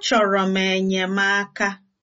Achọrọ m enyemaka.